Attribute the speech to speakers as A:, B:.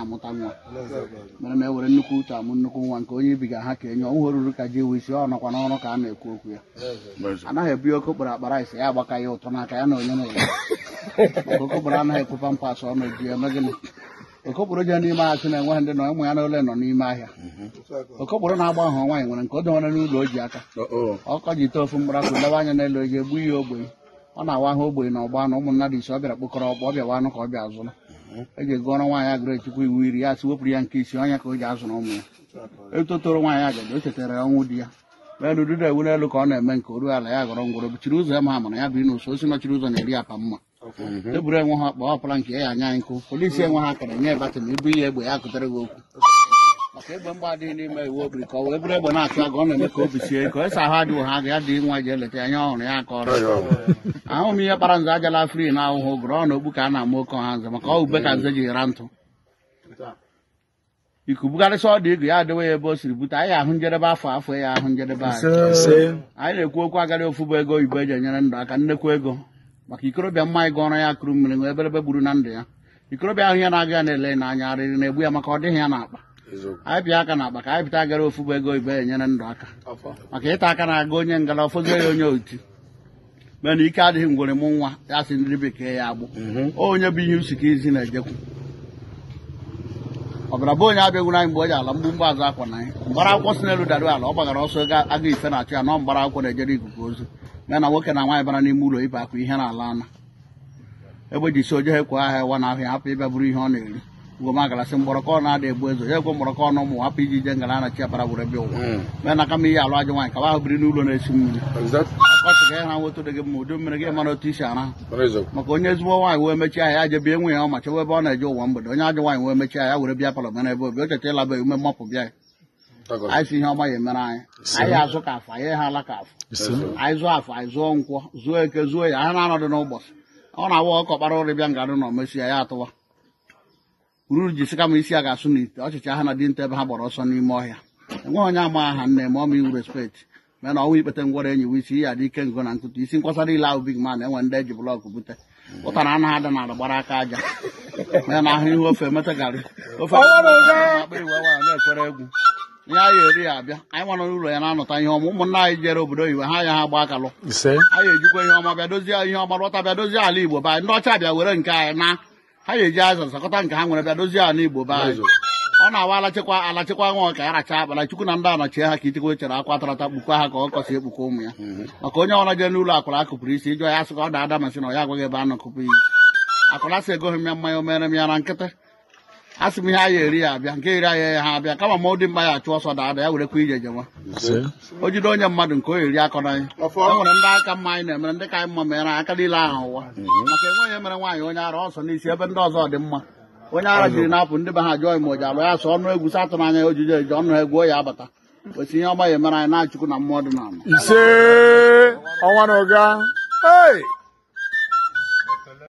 A: amụta nwa mere ma e were nnukwu uche amụ nnukwu nwa nke onye ibiga ha ka enye ọnwụ ruru ka ji wisi ọ nọkwa n'ọrụ ka a na-ekwu okwu ya anaghị ebu oke okporo akpara ise ya agbaka ya ụtọ n'aka ya na onye na ụlọ maka okokporo anaghị ekwe pampas ọ na-eji eme gịnị okokporo ji n'ime ahịa sị na enweghị ndị nọ ụmụ ya na ole nọ n'ime ahịa okokporo na-agba ahụ nwaanyị nwere nke o dowere n'ụlọ o ji aka ọkọ ji ite ofu mkpụrụ akụ lewe anya n'elu oji egbu ihe ogbenye ọ na-awa ahụ ogbenye na ọgba na ụmụ mmadụ ise ọ bịara kpokọrọ ọkpọ ọ bịawa anụ ka ọ bịa azụrụ eji ego ọrụ nwaanyị agụrụ echukwu iwu iri ya sị wepụrụ ya nke isi onye ka o ji azụrụ ụmụ ya etotoro nwaanyị agadi o chetara ọnwụ di ya elu duda ewere elu ka ọ na-eme nke oru ala ya gọrọ ngwụrụ bichiri ụzọ ya ma amara ya biri n'ụsọ osi nọchiri ụzọ na-eri apa mma eburu enwe ha akpa ọpara nke ya anya nkụ polisi enwe ha akara nye batịn ibu ihe egbe ya kụtara gị okwu maka egbe mgba adịghị n'ime iwu obiri ka ọ wee bụrụ egbe na-achụ agụ ọ na-eme ka obi sie ike esa ahụ adịghị ha ga dị nwa je eleta anya ọhụrụ ya ka ọrụ ahụghị m ihe kpara nze ajala fri na ahụhụ gụrụ ọ na okpu ka a na-ama oke ọha nze maka ọ ube ka nze ji ra ntụ iku bugarịsị ọdụ igu ya adịwe ya ebe o siri bute anyị ahụ njedebe afọ afọ ya ahụ njedebe anyị anyị na-ekwu okwu agarị ofu bụ ego oyibo eji enyere ndụ aka nnekwu ego maka ikorobịa mma anyị ọrụ ya kụrụ mmiri nwee eberebe gburu na ndụ ya ikorobịa ahụ ya na-aga ya na-ele n'anya arịrị na-egbu ya maka ọ dịghị ya na akpa anyị bịa aka na ka anyị bita gara bụ ego ibe enyere ndụ aka maka ịta aka na-aga onye ngala ọfọzie ya onye oti mana ike adịghị ngwere m nwa ya si ndị bekee ya agbụ mhm. onye bụ ihe usi ka izi na-ejekwu ọbara bụ onye abịagwuru anyị mgbe o ji ala mgbumgba azụ akwa na anyị mgbara akwụkwọ si n'elu dara ala ọ gbagara ọsọ aga ife na-achụ ya nọ mgbara akwụkwọ na-ejere ikuku ozu ya na nwoke na nwaanyị bara n'ime ụlọ ibe akwa ihe na ala ana egbe ji si oje ekwe ahịa wa na ahịa hapụ ịbịa bụrụ ihe ọ na-eri goma gala sin boroko na de bozo ye go boroko no mo api ji jengala na chia para bure bio me mm. na kami ya lo ajo wan ka ba bri nu lo na esim exact ko to na wo to de mo do mere ge ma no tisha na rezo ma ko nye zuwa wan we me chia ya je bi enwe ya ma che we ba na jo wan bo do nya jo wan we me chia ya wure bia palo me na bo e. e e bi o te te la ba me mo po bia anyị si ihe ọma ya emere anyị anyị azụ ka afọ anyị ha ala ka afọ anyị zụọ afọ anyị zụọ nkwọ zụọ eke zụọ ya anyị na-anọdụ n'ụbọchị ọ na-awa ọkọkpara ụrịbịa nga dị na omesia ya atụwa ururu ji sika ma isi a ga-asụ n'ite ọchịcha ha na dinta ebe ha gbara ọsọ n'ime ọhịa enweghị onye ama aha nne ma ọma iwu respekti mee na ọnwa ikpete ngwọrọ enyi w isi ya dị ike ngo na ntụtụ isi nkwasara ile ahụ big man enwe ndị eji blọk bute ụta na anaghị ada nala gbara aka aja mee na ahụ ihe ofe emeta garị ofe na-ekwere egwu ya ya eri ya abịa anyị nwara n'ụlọ ya na-anọta ihe ọma ụmụnna anyị jere obodo oyibo ha ya ha gba akalụ anyị ejikwa ihe ọma bịa dozie ihe ọma lọta bịa dozie ala igbo ba ndị ọcha bịa were nke anyị na ha ga-eji azụ nsakọta nke ha nwere bịa dozie ala igbo be anyị ọ na-awa alachịkwa alachịkwa nwa ka ya racha akpara chukwu na ndị anọchie ha ka ichekwa e chere akwa tarata kpukwa ha ka ọ kọsị ekpukwa ụmụ ya mm-hmm. maka onye ọrụ jee n'ụlọ akwara akụpụrụ isi ịjụ ya ka ọ da ada na ọ ya agwaghị ebe a nọkụpụ ya akwara sị egoghị m ya mmanya o m ya na nkịtị asị m ihe eri ya abịa nke iri ya ha abịa kama mụ ọ dị mma ya achụ ọsọ dada ya werekwa ije jewa o jide onye mmadụ nke o eri akọ na anyị e nwere ndị aka mma anyị na-emere ndị ka anyị mma mere aka niile ahụ ụwa mhm. maka enweghị emere nwaanyị onye ara ọsọ n'isi ebe ndị ọzọ dị mma onye ara jiri na-apụ ndị be ha jụọ ime oji alụ ya sọ ọnụ egwu satụ n'anya ojije eji ọnụ egwu o ya abata kwesị ihe ọma ya emere anyị na-achụkwu na mmụọ dị n'ala